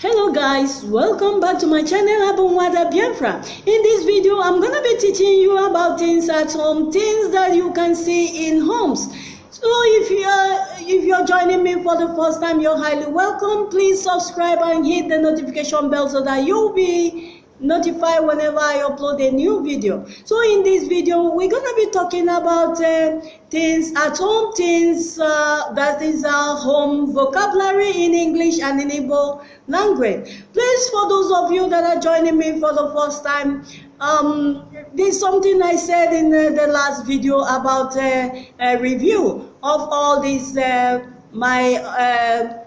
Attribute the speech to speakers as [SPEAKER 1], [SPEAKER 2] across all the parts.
[SPEAKER 1] hello guys welcome back to my channel abunwada biafra in this video i'm gonna be teaching you about things at home things that you can see in homes so if you're if you're joining me for the first time you're highly welcome please subscribe and hit the notification bell so that you'll be notify whenever I upload a new video. So in this video, we're gonna be talking about uh, things at home, things uh, that is our home vocabulary in English and in Igbo language. Please, for those of you that are joining me for the first time, um, there's something I said in uh, the last video about uh, a review of all these uh, my uh,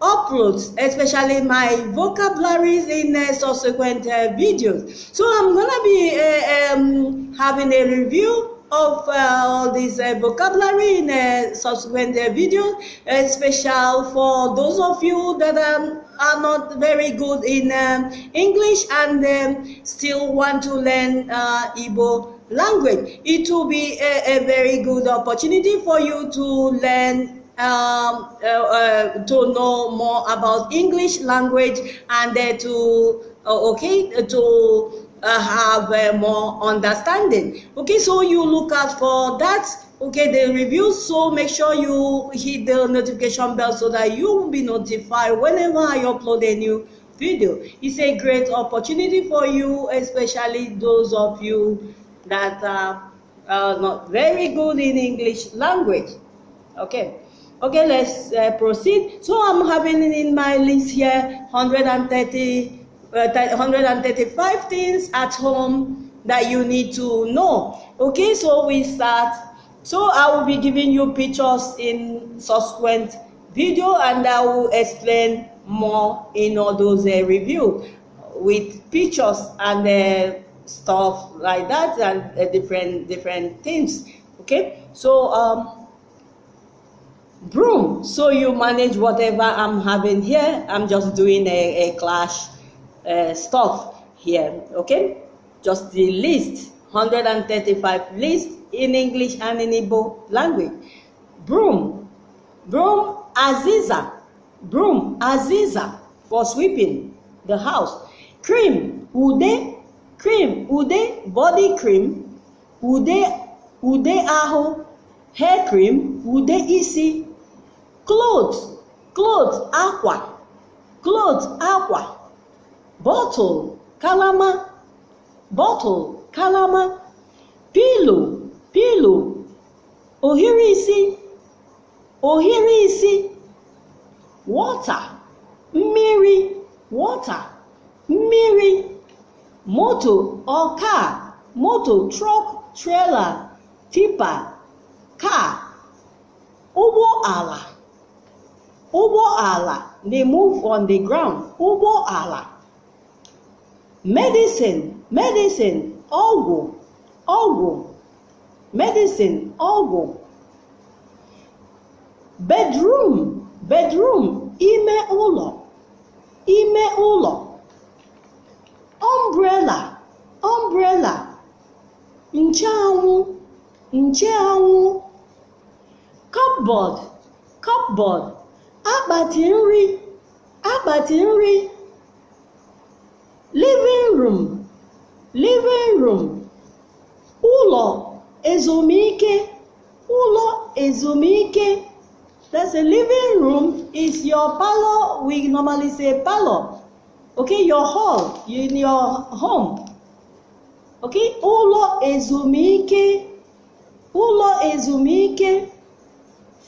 [SPEAKER 1] uploads especially my vocabularies in uh, subsequent uh, videos so i'm gonna be uh, um, having a review of uh, all this uh, vocabulary in uh, subsequent videos special for those of you that um, are not very good in um, english and um, still want to learn uh, Igbo language it will be a, a very good opportunity for you to learn um, uh, uh, to know more about English language and uh, to uh, okay uh, to have more understanding. Okay, so you look out for that okay the review so make sure you hit the notification bell so that you will be notified whenever i upload a new video it's a great opportunity for you especially those of you that are, are not very good in english language okay Okay, let's uh, proceed. So I'm having in my list here 130, uh, 135 things at home that you need to know. Okay, so we start. So I will be giving you pictures in subsequent video and I will explain more in all those uh, review with pictures and uh, stuff like that and uh, different different things. Okay, so um, broom. So you manage whatever I'm having here. I'm just doing a, a clash uh, stuff here, okay? Just the list, 135 list in English and in Igbo language. Broom, broom aziza, broom aziza for sweeping the house. Cream, ude, cream, ude, body cream, ude, ude aho, hair cream, ude easy cloth cloth akwa cloth akwa bottle kalama bottle kalama pillow pillow ohiri isi ohiri isi water mmiri water mmiri moto ọka moto truck, trailer, tipa car, ụgbọ ala Ubo ala. They move on the ground. Ubo ala. Medicine, medicine, ọgwụ, ọgwụ. Medicine, ọgwụ. Bedroom, bedroom, ime ụlọ, ime ụlọ. Umbrella, umbrella. Nchanwụ, nchanwụ. Cupboard, cupboard akpati nri akpati nri living room living room ụlọ ezumike ụlọ ezumike that's a living room is your parlor we normally say parlor okay your hall in your home okay ụlọ ezumike ụlọ ezumike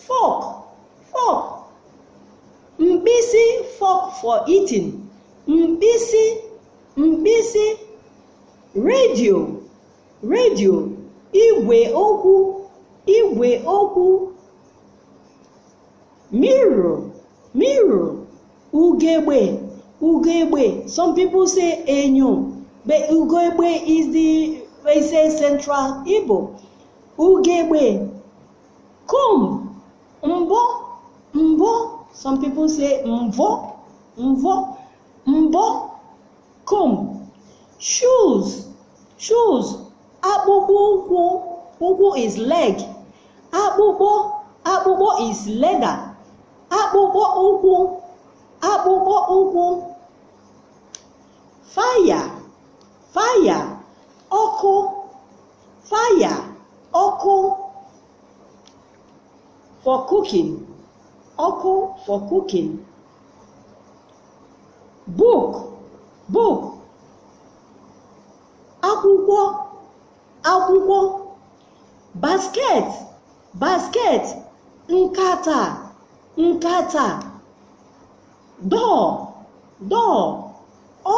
[SPEAKER 1] fork fork mkpịsị fork for eating mkpịsị mkpịsị redio redio igwe okwu igwe okwu mirror mirror ugegbe ugegbe some people say enyo but ugegbe is the they say central igbo ugegbe comb mbọ mbọ Some people say mvo, mvo, mbo, comb. Shoes, shoes. Abubu, bubu is leg. Abubu, abubu is leather. Abubu, ubu, abubu, ubu. Fire, fire. Ọkụ, fire, ọkụ. For cooking. Oko for cooking. Book, book. Akwụkwọ, akwụkwọ. Basket, basket. Nkata, nkata. Door, door.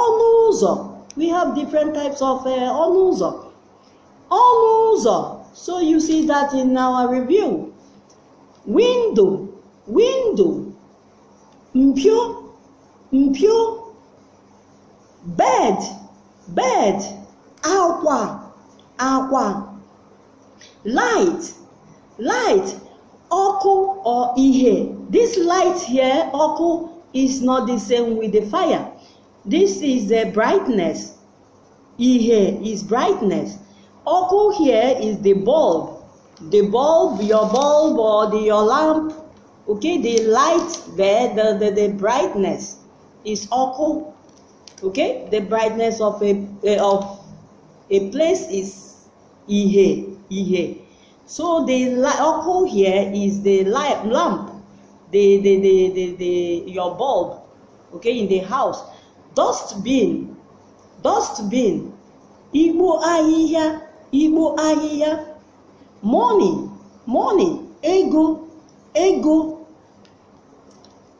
[SPEAKER 1] Ọnụ ụzọ. We have different types of uh, ọnụ ụzọ. Ọnụ ụzọ. So you see that in our review. Window window mpio mpio bed bed akwa akwa light light ọkụ or ihe this light here ọkụ is not the same with the fire this is the brightness ihe is brightness ọkụ here is the bulb the bulb your bulb or the, your lamp okay the light there the, the, the brightness is occult okay the brightness of a, of a place is ihe ihe so the occult here is the light lamp the the, the the the your bulb okay in the house dust bin dust bin igbo ahịhịa igbo ahịhịa money money ego ego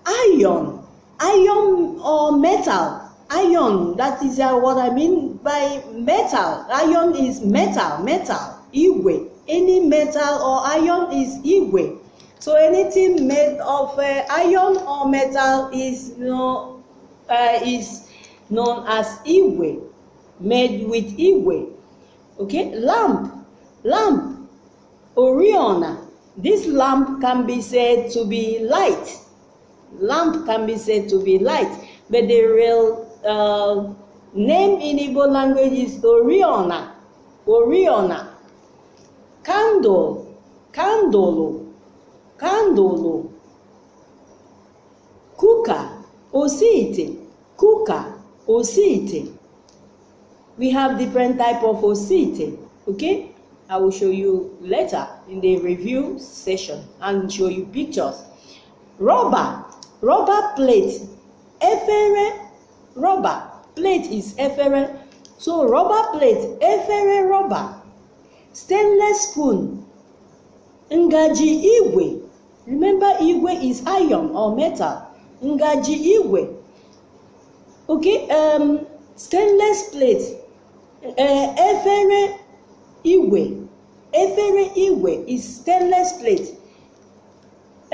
[SPEAKER 1] iron iron or metal iron that is uh, what i mean by metal iron is metal metal iwe any metal or iron is iwe so anything made of uh, iron or metal is you know, uh, is known as iwe made with iwe okay lamp lamp oriona this lamp can be said to be light Lamp can be said to be light, but the real uh, name in Igbo language is Oriona. Oriona. Candle. Candolo. Candolo. Kuka. Osiite, Kuka. Osiite. We have different type of Osiite. Okay? I will show you later in the review session and show you pictures. Rubber rubber plate efere rubber plate is efere so rubber plate efere rubber stainless spoon ngaji igwe remember igwe is iron or metal ngaji igwe okay um, stainless plate uh, efere igwe efere igwe is stainless plate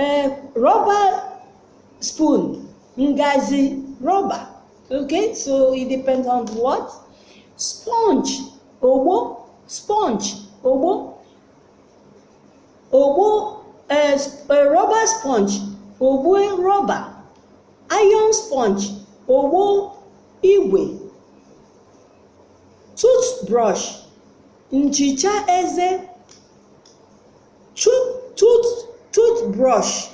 [SPEAKER 1] uh, rubber spoon, ngazi, rubber. Okay, so it depends on what sponge, obo, sponge, obo, obo, uh, eh, a eh, rubber sponge, obo rubber, iron sponge, obo iwe, toothbrush, nchicha eze, tooth, tooth, toothbrush,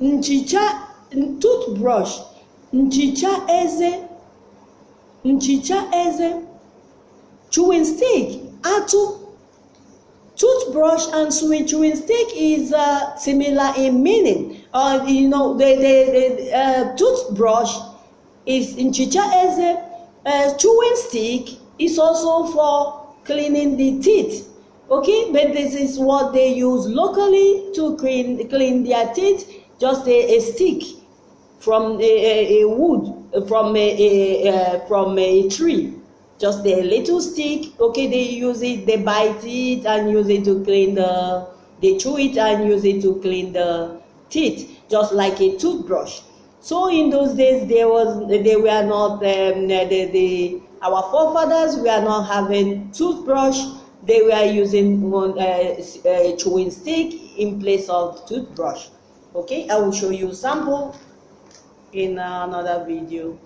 [SPEAKER 1] nchicha toothbrush nchicha eze nchicha eze chewing stick atụ toothbrush and chewing stick is uh, similar in meaning. Uh, you know, the, the, the uh, toothbrush is Nchicha eze, as uh, chewing stick is also for cleaning the teeth. Okay, but this is what they use locally to clean, clean their teeth, just a, a stick. from a, a wood, from a, from a tree. Just a little stick, okay, they use it, they bite it and use it to clean the, they chew it and use it to clean the teeth, just like a toothbrush. So in those days, there was they were not um, the, the our forefathers were not having toothbrush. They were using one uh, uh, chewing stick in place of toothbrush. Okay, I will show you sample in another video.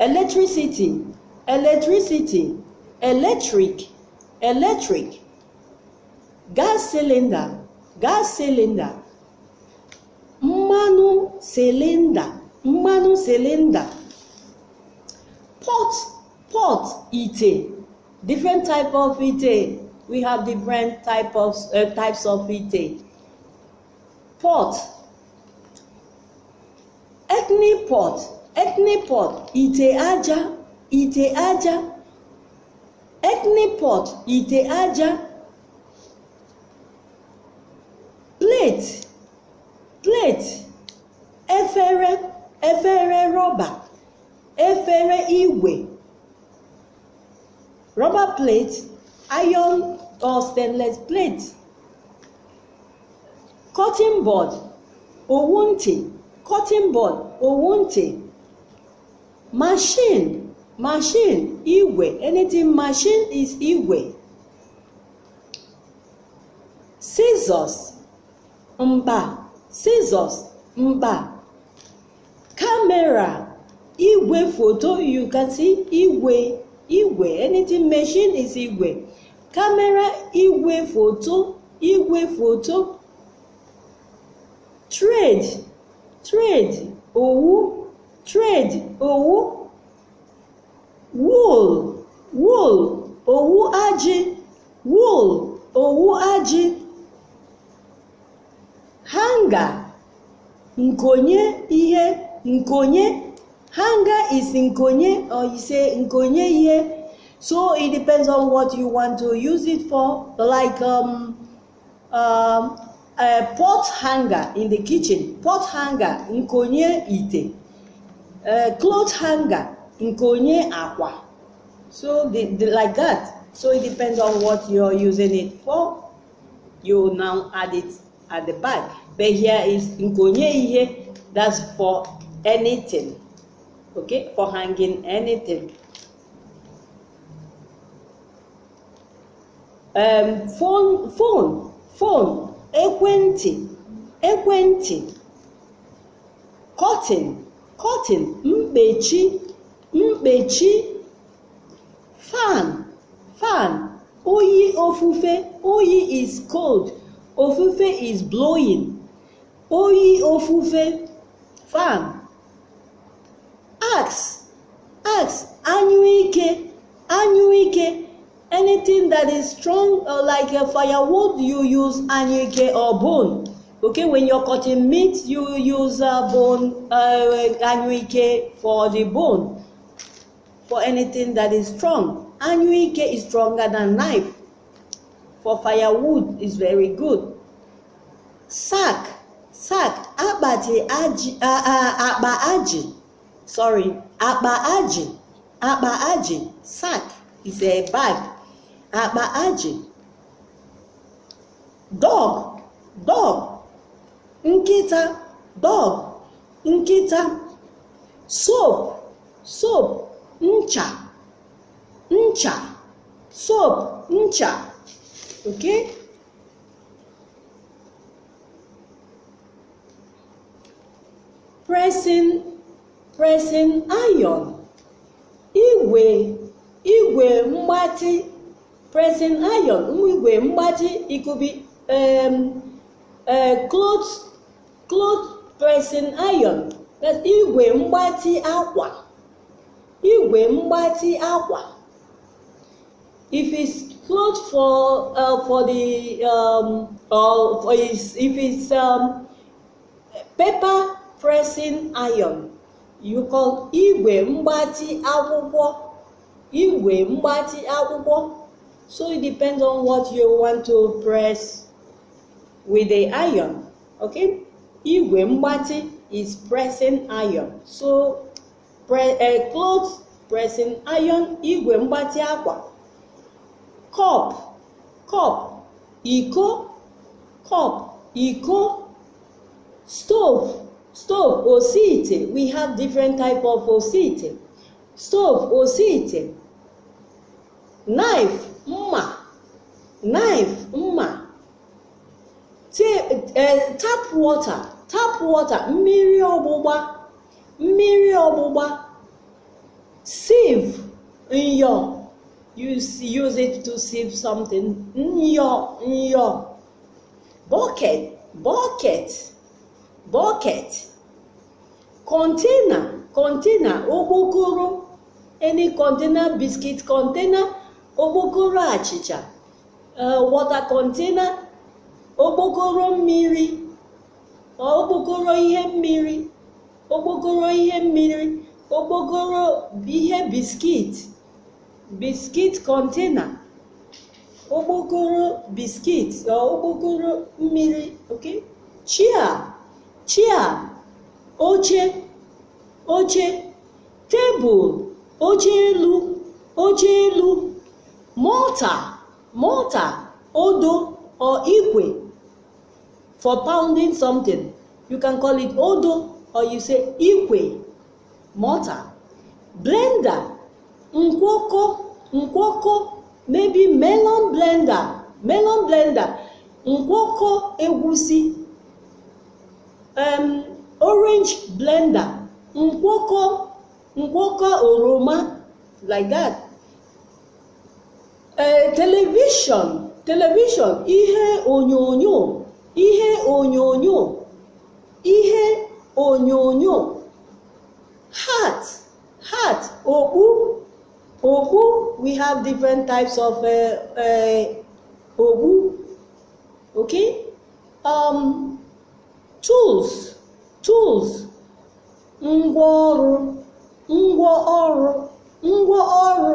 [SPEAKER 1] Electricity, electricity, electric, electric. Gas cylinder, gas cylinder. Mmanụ cylinder, mmanụ cylinder. Pot, pot ite. Different type of ite. We have different type of, uh, types of ite. Pot ethnic pot ethnic pot ite aja ite aja ethnic pot ite aja plate plate efere efere rọba efere igwe rubber plate iron or stainless plate cutting board owu ntị cotton bud owuntị machine machine igwe anything machine is igwe scissors mba scissors mba camera igwe photo. you can see igwe igwe anything machine is igwe camera igwe foto igwe photo. trade trade òwú trade òwú wool wool òwú ajị wool òwú ajị hanga nkonye ihe nkonye hanga is nkonye or you say nkonye ihe so it depends on what you want to use it for like um, um, Eh, pot hanger in the kitchen, pot hanger in konye ite, eh, cloth hanger in konye aqua. So the, the, like that. So it depends on what you're using it for. You now add it at the back. But here is konye ihe. That's for anything. Okay, for hanging anything. Um, phone, phone, phone. ekwentị ekwentị kọtịn kọtịn mkpechi mkpechi fan fan oyi ofufe oyi is cold ofufe is blowing oyi ofufe fan ax ax anyụike anyụike anything that is strong uh, like a firewood you use anyike or bone okay when you're cutting meat you use uh, bone uh, for the bone for anything that is strong anyike is stronger than knife for firewood is very good sack sack abati aji uh, uh, akpa aji sorry akpa aji akpa aji sack is a bag akpa ajị dog dog nkịta dog nkịta soap soap ncha ncha soap ncha okay pressing pressing iron igwe igwe mgbatị pressing iron igwe mgbaji ikubi cloth e, cloth pressing iron igwe mgbatị akwa igwe mgbatị akwa if it's cloth for uh, for the um, or for his, if it's um, paper pressing iron you call igwe mgbati akwụkwọ igwe mgbati akwụkwọ So it depends on what you want to press with the iron. Okay? Igwe mbati is pressing iron. So pre uh, clothes pressing iron, igwe mbati akwa. Cup, cup, iko, cup, iko. Stove, stove, osite. We have different type of osite. Stove, osite knife mma knife mma e, tap water tap water mmiri ọgbụgba mmiri ọgbụgba sieve nyo. you use it to sieve something Nyo, nyo. bucket bucket bucket container container okpokoro any container biscuit container okpokoro achịcha eh, wọta kọntena okpokoro mmiri eh, okpokoro ihe mmiri okpokoro ihe mmiri okpokoro kọntena eh, chia oche tebụl oche elu mortar mortar odo or ikwe for pounding something you can call it odo or you say ikwe mortar blender nkwoko nkwoko maybe melon blender melon blender nkwoko egusi um, orange blender nkwoko nkwoko oroma like that Eh, television, television. ihe onyonyo ihe onyonyo ihe onyonyo hat hat okpu okpu we have different types of uh, uh, okpu okay um, tools tools ngwaọrụ ngwaọrụ ngwaọrụ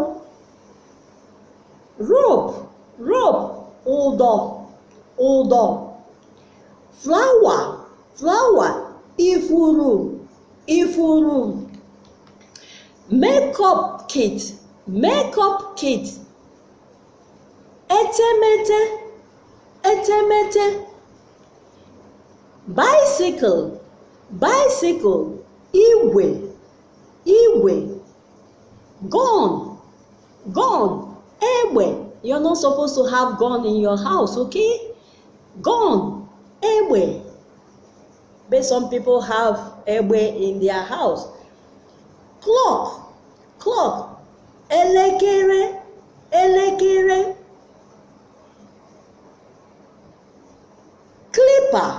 [SPEAKER 1] rope rope odò odò flower flower ifuru ifuru makeup kit makeup kit etemete etemete bicycle bicycle Iwe, Iwe. gone gone Egbe, you're not supposed to have gun in your house, okay? Gun, egbe. But some people have egbe in their house. Clock, clock, elekere, elekere. Clipper,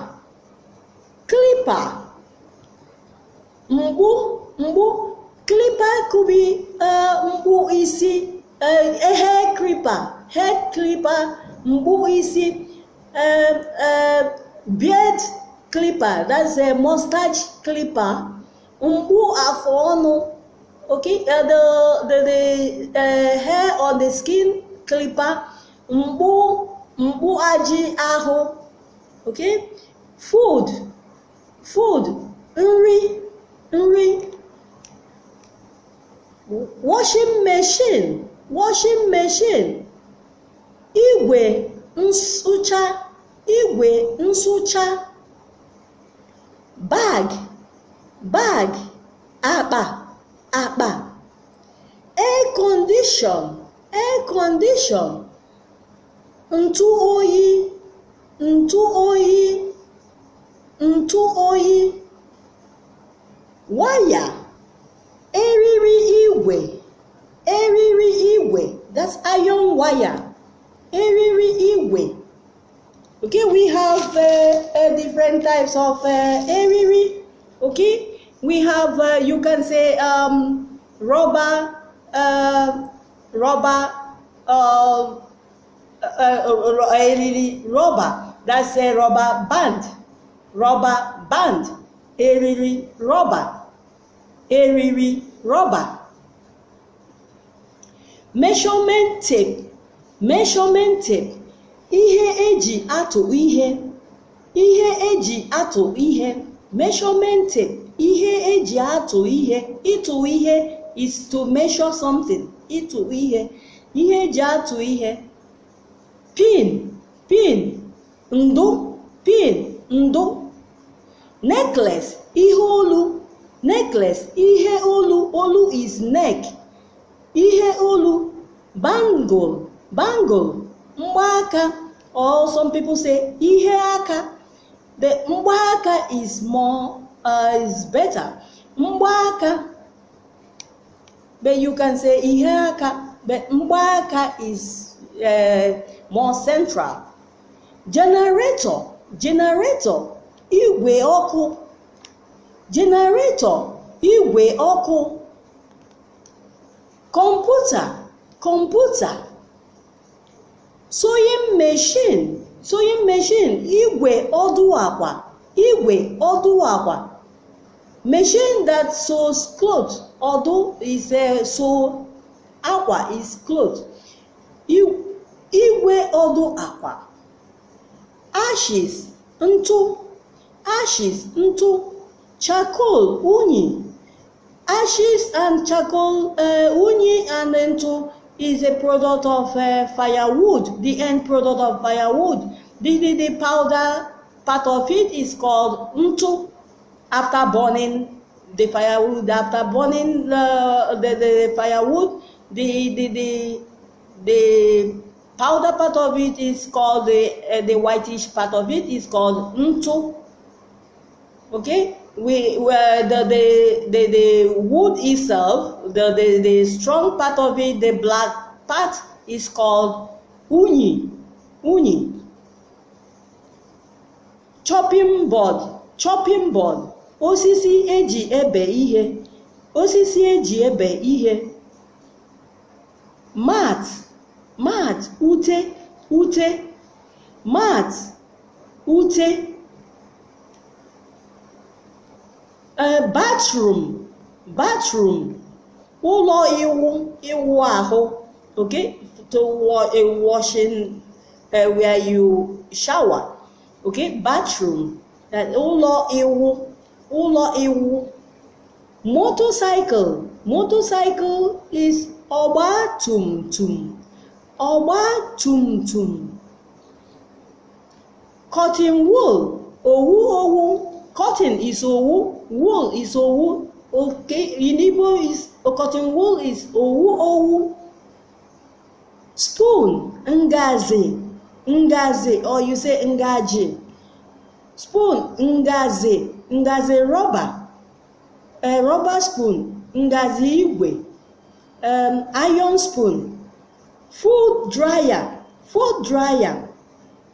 [SPEAKER 1] clipper. Mgbu, mgbu. Clipper could be uh, mgbu isi. Eh, eh, hair clipper hair clipper mgbu isi eh, beard clipper that's a mustache clipper mgbu afọ ọnụ okay uh, the the, the uh, hair on the skin clipper mgbu mgbu ajị ahụ okay food food nri nri washing machine washing machine igwe nsucha igwe nsụcha bag bag akpa akpa air condition air condition ntụ oyi ntụ oyi ntụ oyi waya eriri igwe eriri igwe that's iron wire eriri igwe okay we have uh, uh, different types of uh, eriri okay we have uh, you can say um, rubber uh, rubber um, uh, uh, uh, eriri rubber that's a rubber band rubber band eriri rubber eriri rubber measurement tape ihe eji atụ ihe ihe e ihe measurement tape ihe eji atụ ihe ịtụ ihe is to measure something ịtụ ihe ihe eji atụ ihe pin pin ndụ pin necklace ihe olu necklace ihe olu olu is neck ihe olu bangle bangle mgbaaka or some people say ihe aka the mgbaaka is more uh, is better mgbaaka but you can say ihe aka but mgbaaka is uh, more central generator generator igwe ọkụ generator igwe ọkụ kọmputa computer. Sewing machine, machine. Igwe ọdụ akwa, igwe ọdụ akwa. Machine that sews clothes. Ọdụ is a eh, sew. Akwa is clothes. Igwe ọdụ akwa. Ashes, ntụ. Ashes, ntụ. Charcoal, unyi. Ashes and charcoal uh, uni and then is a product of uh, firewood, the end product of firewood. The, the, the powder part of it is called untu after burning the firewood, after burning the, the, the firewood, the, the, the, the powder part of it is called the, uh, the whitish part of it is called untu. Okay? we where the, the the the wood itself the, the the strong part of it the black part is called uni uni chopping board chopping board osisi eji ebe ihe osisi eji ebe ihe mat mat ute ute mat ute uh, bathroom bathroom ụlọ ịwụ ịwụ ahụ okay to washing uh, where you shower okay bathroom ụlọ eh, ịwụ ụlọ ịwụ motorcycle motorcycle is ọgba tum tum ọgba tum tum cotton wool owu owu Cotton is owu, wool is owu. Okay, Inibo is oh, cotton wool is owu owu. Spoon, ngazi, ngazi, or you say ngaji. Spoon, ngazi, ngazi rubber. A rubber spoon, ngazi igwe. Um, iron spoon. Food dryer, food dryer.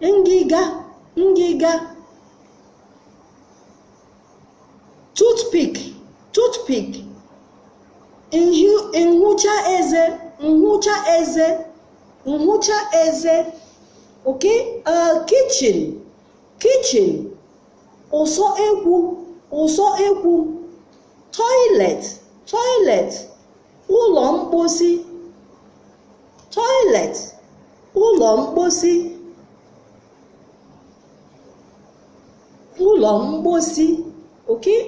[SPEAKER 1] Ngiga, ngiga. toothpick toothpick nhụcha eze nhụcha eze nhụcha eze okay uh, kitchen kitchen ụsọ ekwu ụsọ ekwu toilet toilet ụlọ mposi toilet ụlọ mposi ụlọ mposi okay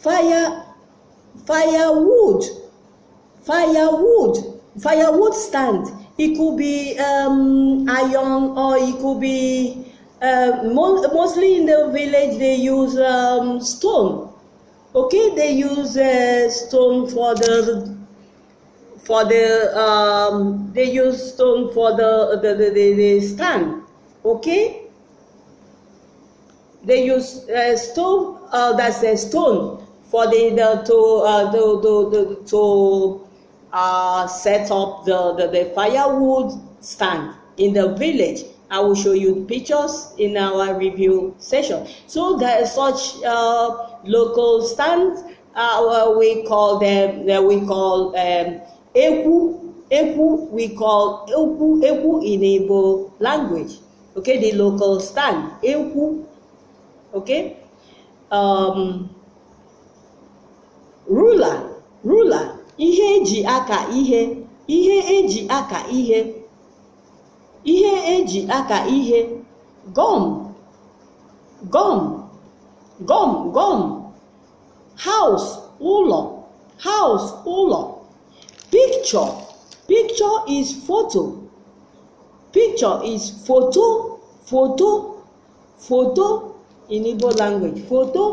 [SPEAKER 1] fire firewood firewood firewood stand it could be um, iron or it could be uh, um, mo mostly in the village they use um, stone okay they use uh, stone for the for the um, they use stone for the the, the, the, the stand okay they use uh, stone uh, that's a stone for the, the to uh, the, the, the, to uh, set up the, the, the firewood stand in the village. I will show you pictures in our review session. So there is such uh, local stands. Uh, we call them. Uh, we call um, eku. Eku. We call eku. Eku in Igbo language. Okay, the local stand. Eku. Okay. Um, rula rula ihe eji aka ihe ihe eji aka ihe ihe eji aka ihe gum gum gum gum house ụlọ house ụlọ picture picture is photo picture is photo photo photo in Igbo language photo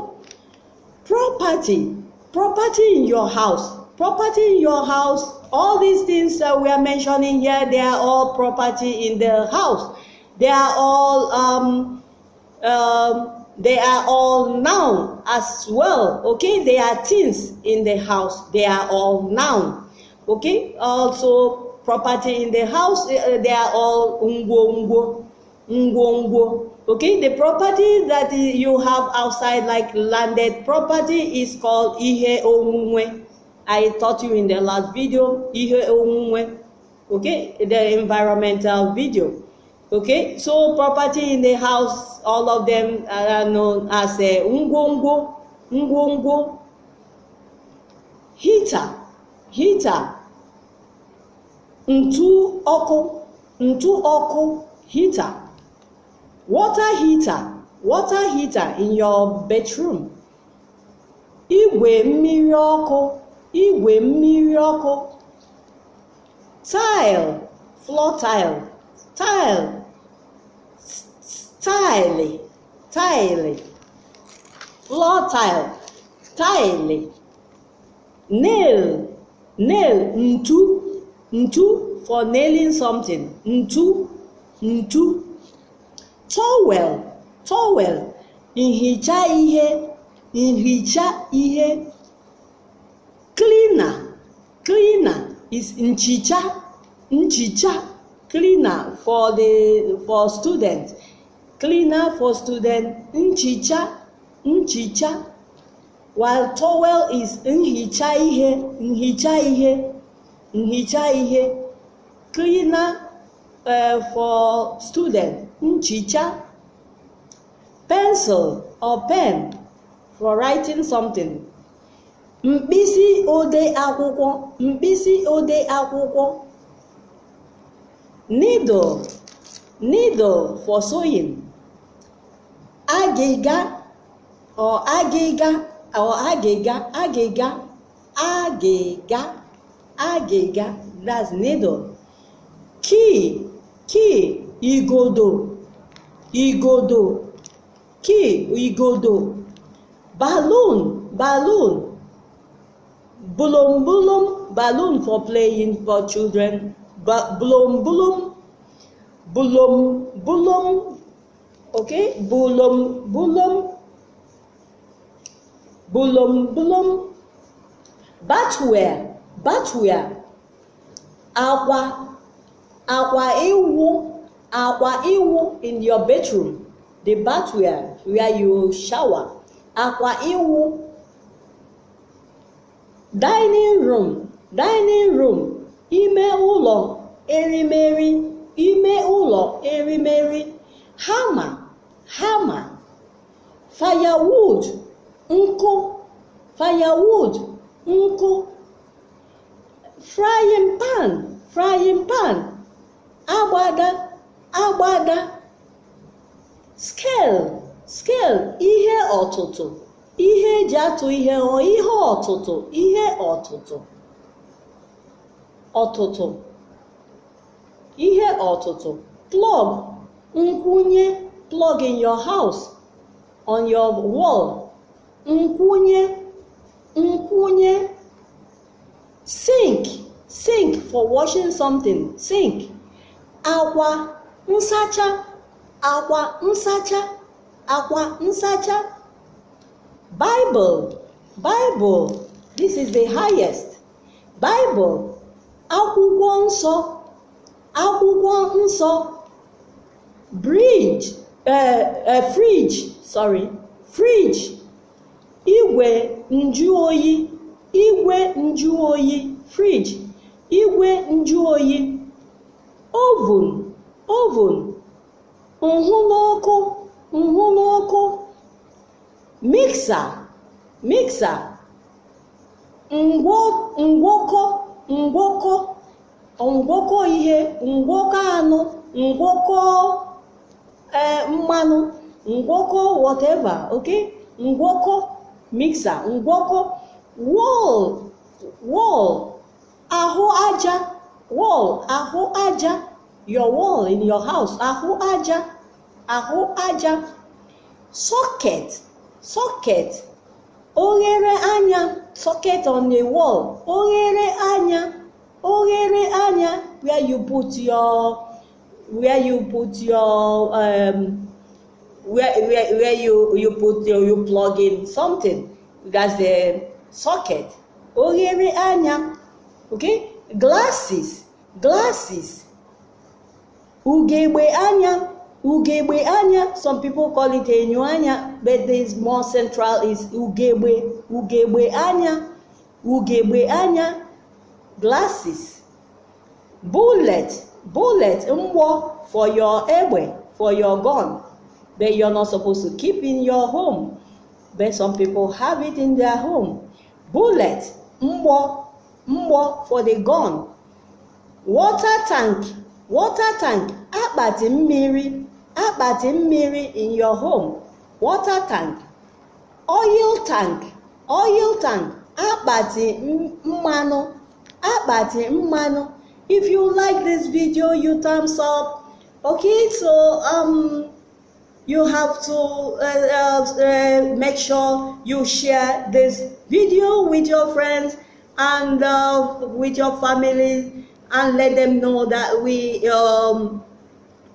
[SPEAKER 1] property property in your house property in your house all these things that we are mentioning here they are all property in the house they are all um, um, they are all noun as well okay they are things in the house they are all noun okay also property in the house eh, eh, they are all ungo ungo ungo ungo okay the property that you have outside like landed property is called ihe onwunwe i taught you in the last video ihe onwunwe okay the environmental video okay so property in the house all of them are known as a uh, ngwongwo ngwongwo heater heater ntu ọkụ ntu ọkụ heater water heater water heater in your bedroom igwe mmiri ọkụ igwe mmiri ọkụ tile floor tile tile tile tile floor tile tile nail nail ntu ntu for nailing something ntu ntu towel towel nhicha ihe nhicha ihe cleaner cleaner is nchicha nchicha cleaner for the for student cleaner for student nchicha nchicha while towel is nhicha ihe nhicha ihe nhicha ihe cleaner uh, for student nchicha, pencil or pen for writing something, mkpịsị ode akwụkwọ mkpịsị ode akwụkwọ, needle needle for sewing, agịga or agịga or agịga agịga agịga agịga that's needle, key key igodo igodo ki igodo balloon balloon bulum bulum balloon for playing for children bulum bulum bulum bulum okay bulum bulum bulum bulum batware batware akwa akwa ewu akwa iwu in your bedroom the bathroom where you shower akwa iwu dining room dining room ime ụlọ erimeri ime ụlọ erimeri hama hama firewood nkụ firewood nkụ frying pan frying pan agbada agbada scale scale ihe ọtụtụ ihe eji atụ ihe ghọọ ihe ọtụtụ ihe ọtụtụ ọtụtụ ihe ọtụtụ plug nkwụnye plug in your house on your wall nkwụnye nkwụnye sink sink for washing something sink akwa nsacha akwa nsacha akwa nsacha Bible Bible this is the highest Bible akwụkwọ nsọ akwụkwọ nsọ bridge uh, uh, fridge sorry fridge igwe nju oyi igwe nju oyi fridge igwe nju oyi oven oven nhụ n'ọkụ miksa miksa ngwọkọ ngwọkọ ngwọkọ ihe ngwọkọ anụ ngwọkọ e, mmanụ ngwọkọ whatever ok ngwọkọ miksa ngwọkọ wọl wọl ahụ aja wọl ahụ aja your wall in your house ahụ aja ahụ aja socket socket oghere anya socket on the wall oghere anya oghere anya where you put your where you put your um, where, where, where you, you put your, you plug in something that's the socket oghere anya okay glasses glasses Ugegbe anya, ugegbe anya, some people call it enyuanya, but this more central is ugegbe, ugegbe anya, ugegbe anya, glasses, bullet, bullet, mwo for your egbe, for your gun, but you're not supposed to keep in your home, but some people have it in their home. Bullet, mwo, mwo for the gun, water tank, water tank akpati mmiri akpati mmiri in your home water tank oil tank oil tank akpati mmanụ akpati mmanụ if you like this video you thumbs up okay so um, you have to uh, uh, uh, make sure you share this video with your friends and uh, with your family and let them know that we um,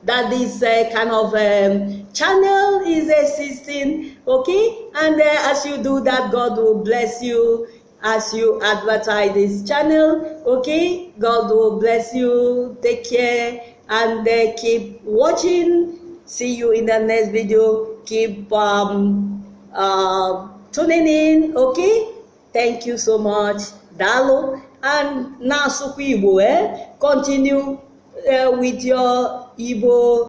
[SPEAKER 1] that this uh, kind of um, channel is existing okay and uh, as you do that god will bless you as you advertise this channel okay god will bless you take care and uh, keep watching see you in the next video keep um, uh, tuning in okay thank you so much dalo and now eh? continue uh, with your 一波。